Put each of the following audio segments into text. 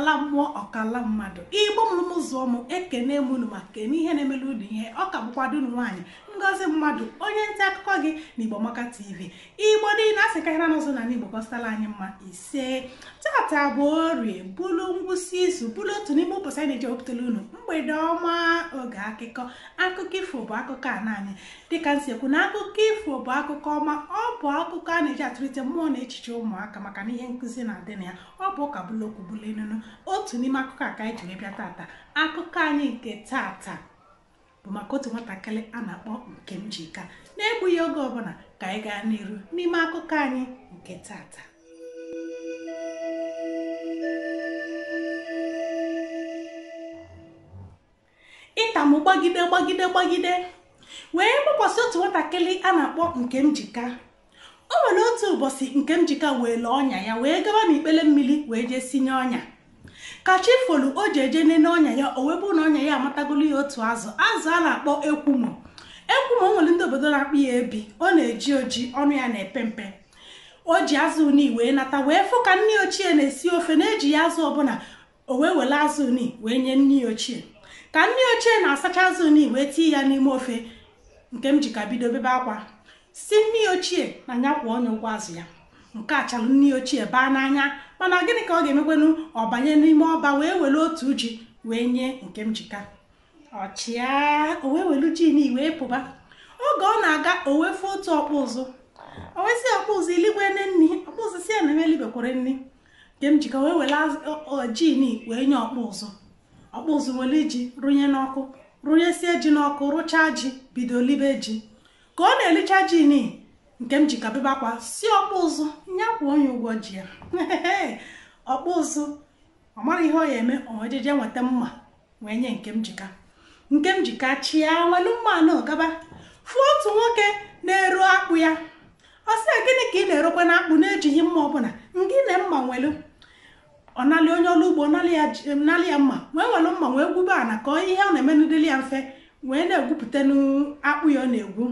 ọkala mmụọ ọkala mmadụ igbo m ụzọ mụ ekene mụnụ ma kene ihe na-emelu ụdị ihe ọka ka bụkwado unu nwaanyị ngozi mmadụ onye nta akụkọ gị na Igbomaka TV igbo niile asị karịra n'ụzọ na n'igbo gọstala anyị mma ise tata bụ orie bụlụ ngwụsị izu bụlụ otu n'ime ụbọchị anyị na-eji ewepụtala unu mgbede ọma oge akụkọ akụkọ ifo bụ akụkọ a naanị dịka nsekwu na akụkọ ifo bụ akụkọ ọma ọ bụ akụkọ a na-eji atụlite mmụọ na echiche ụmụaka maka na ihe nkụzi na-adị na ya ọ bụ ụka bụlụ okwu bụlụ enunu otu n'ime akụkọ a ka anyị jiri bịa tata akụkọ anyị nke tata bụ maka otu nwatakịrị a na-akpọ Nkemjika na-egbughị oge ọbụla ka anyị gaa n'iru n'ime akụkọ anyị nke tata ịtamụ gbagide gbagide gbagide wee gbakwasị otu nwatakịrị a na-akpọ nke Nkemjika o nwere otu ụbọchị Nkemjika wee lee ọnya ya wee gaba n'ikpele mmiri wee jee sinye ọnya ka chi folu o ji eje nene ọnya ya o webụ na ọnya ya amatagolu ya otu azụ azụ a na-akpọ ekwumo ekwumo nwere ndị obodo na-akpụ ya ebi ọ na-eji oji ọnụ ya na-epe mpe o ji azụ uni wee nata wee fụ ka nne ochie na-esi ofe na-eji ya azụ ọbụla o wee wele azụ uni wee nye nne ochie ka nne ochie na-asacha azụ uni wee tie ya n'ime ofe nke m ji ka bido bebe akwa si nne ochie na nyakwụ kwụọ ọnya ụgwọ azụ ya nke a chalụ nne ochie baa n'anya mana gịnị ka ọ ga-emekwanụ ọ banye n'ime ọba wee were otu ji wee nye nke mjika ọchịa o wee welu jin wee pụba oge ọ na-aga o otu ọkpụ ụzụ o wesị ọkpụ ụzụ iligwe nne nni ọkpụ ụzụ si ya na eme nni nke mjika wee were jin wee nye ọkpụ ụzụ ọkpụ ụzụ were ji rụnye n'ọkụ rụnyesie ji n'ọkụ rụchaa ji bido libe ji ka ọ na-elicha jin nke m ji kabebe akwa si ọkpụzụ ụzụ onye ụgwọ ji ya ọkpụzụ ọ mara ihe ọ ya eme onwejeje nweta mma wee nye nke m jika nke m jika chịa welu mmanụ gaba fụọ otu nwoke na-eru akpụ ya ọ sị gịnị ka ị na-erokwa na akpụ na-ejighị mma ọbụla ngị na mma nwelu ọ nalị onye ọrụ ugbo nalị ya mma wee welu mma wee gwube ana ka ihe ọ na emenudili ya mfe wee na-egwupụta n'akpụ ya ọ na-egwu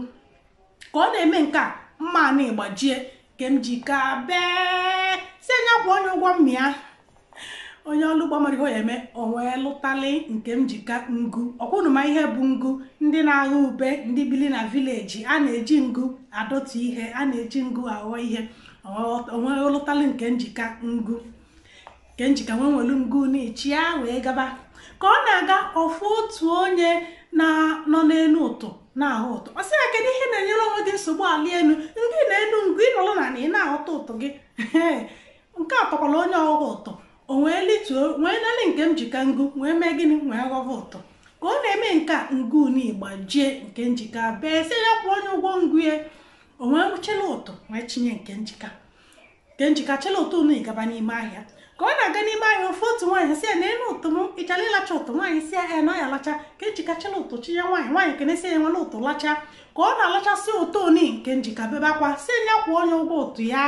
ka ọ na-eme nke a mma na ịgbajie nke m ji ka bee si anya kwụ onye ụgwọ mmịa onye ọlụ ụgbọ mmiri ya eme wee lụtali nke m jika ngu ọkwụnụma ihe bụ ngu ndị na-agha ube ndị bili na vileji a na-eji ngu adọtụ ihe a na-eji ngu aghọ ihe onwee lụtali nke njika ngu nke njika nwee nwelu ngu na ya wee gaba ka ọ na-aga ọfụ otu onye na nọ n'elu ụtụ na-ahụ ụtụ ọ sị ya kedu nsogbu ala elu ndị na-enu ngụ ịnọrọ na na ị na-aghọta ụtọ gị nke a onye ọghọghọ ụtọ o wee lituo wee nke njika ngụ wee mee gịnị wee ghọghọ ụtọ ka ọ na-eme nke a ngụ naigbajie nke njika bee si ya kwụọ onye ụgwọ ngụ ya o wee ụtọ wee chinye nke njika nke njika chịla ụtọ unu ịgaba n'ime ahịa ka ọ na-aga n'ime anya ofe otu nwaanyị si ya na elu ụtụ m ịchara ịlacha ụtụ nwaanyị si ya ya na ya lacha ka njikachila e ụtụ chinye ya nwaanyị nwaanyị kenesi ya nwa na ụtụ lacha ka ọ na-alachasị ụtọ oni nke bebe akwa si ya kwụọ onye ụgwọ ụtụ ya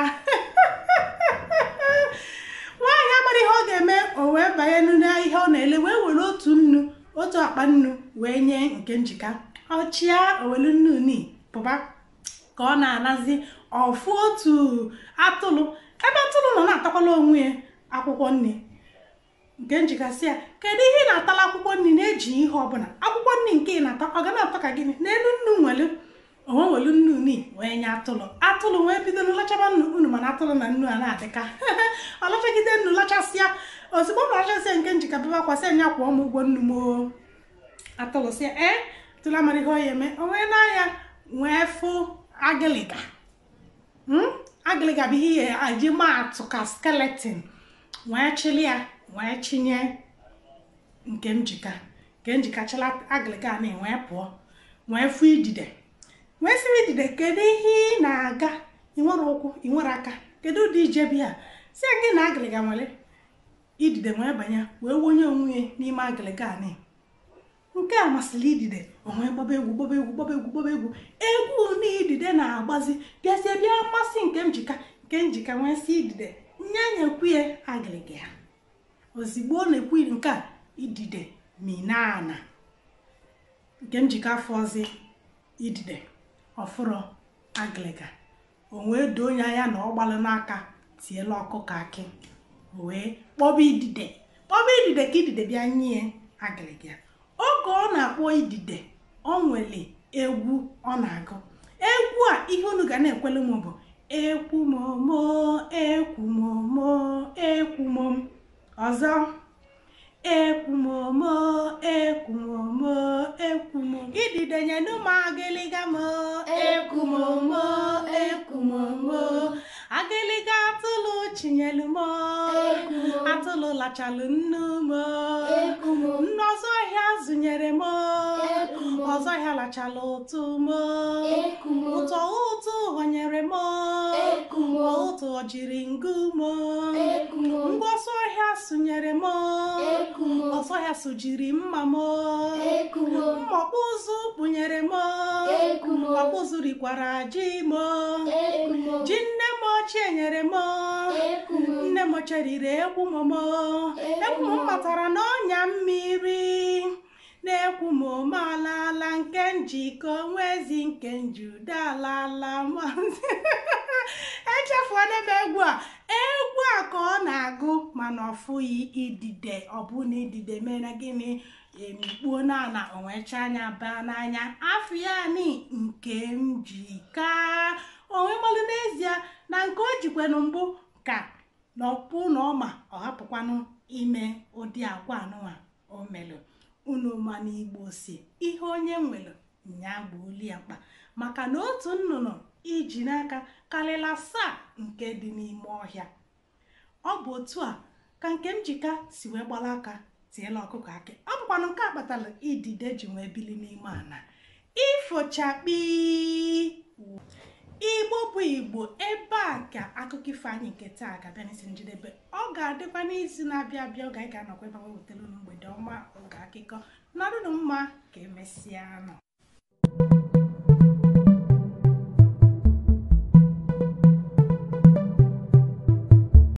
nwaanyị amara ihe ọ ga-eme o wee banye ihe ọ na-ele wee were otu nnu otu akpa nnu wee nye nke njika ọchịa owelu nnu ni pụba ka ọ na-anazi ọfụ otu atụlụ ebe atụrụ nọ na-atakwala onwe ya akwụkwọ nri nke njikasị ya kedu ihe ị na-atala akwụkwọ nri na-eji ihe ọbụla akwụkwọ nri nke ị na-ata ọ ga na-atọ ka gịnị n'elu nnu nwelu onwe nwelu nnu wee nye atụlụ atụlụ wee bido lachaba nnu unu mana atụlụ na nnu a na-adịka ọ lachagide nnu lachasịa ozugbo ọ lachasịa nke njikabebe akwasị anya kwụọ m ụgwọ nnu moo atụlụsịa ee tụrụ amara ihe ọya eme onwe nwee n'anya nwee fụ agịlịga hmm? agịlịga bụ ihe eji maa atụ ka skeletin wee chili ya wee chinye nke njika nke njikachala agịga na e pụọ wee fụ idide wee sịrị idide kedu ihe ị na-aga ịnwere ụkwụ ịnwere aka kedu ụdị ije ya si gị na agịlịga nwere idide wee banye wee wonye onwe ya n'ime agịlịga nke a masịrị idide onwe gbaba egwu gbaba egwu gbaba egwu gbaba egwu egwu na idide na-agbazi bịazie bịa mmasị nke njika nke njika nwee sị idide nye nyekwuye agịrịga ya ozigbo ọ na-ekwu nke a idide minana nke njikọ afọ ọzọ idide ọfụrọ agịrịga o wee doo onye anya na ọ gbalụ n'aka tiela ọkụkọ akị wee kpọba idide kpọba idide ka idide bịa nye agịrịga oge ọ na-akpọ idide ọ nwere egwu ọ na-agụ egwu a ihe unu ga na-ekwele m bụ ekwumomo ekwumomo ekwumom ọzọ ekwumomo ekwumomo ekwumom ididenye n'ụmụ agịlịga m ekwumomo ekwumomo agịlịga atụlụ chinyelu m atụlụ lachalụ nnu m nnu ọzọ ọhịa zụnyere m ọzọ ọhịa lachalụ ụtụ m ụtọ ụtụ họnyere m ọtụ jiri ngụmọ ngwa ọsọ ọhịa sụnyere m ọsọ ọhịa sụjiri mma m mma kpụnyere m ọkpụzụ rikwara ji m ji nne m ochie nyere m nne m ochie riri egwu m m egwu m matara n'ọnya mmiri na-ekwu ma ome alaala nke njikọ onwezi nke njude alaala maazị echefuola m egwu a egwu a ka ọ na-agụ mana ọfụghị idide ọbụna idide mere gịnị emikpuo n'ala onwecha anya baa n'anya afọ ya ni nke m ji onwe n'ezie na nke o jikwanụ mbụ ka na ọkpụ na ọma ọ hapụkwanụ ime ụdị akwa nụwa o melụ unu ma na igbo si ihe onye nwere nya gbuoli ya mkpa maka na otu nnụnụ iji n'aka karịla asaa nke dị n'ime ọhịa ọ bụ otu a ka nke njika si wee gbara aka tiela ọkụkọ akị ọ bụkwana nke a kpatara idide ji wee bili n'ime ana ifochakpi igbo bụ igbo ebe a ka akụkọ ifo anyị nke taa ga-abịa n'isi njedebe ọ ga-adịkwa n'izu na-abịa abịa oge anyị ga-anọkwa ebe wewetara unu mgbe ọdọma oge akụkọ nọdụnụ mma ka emesịa nọ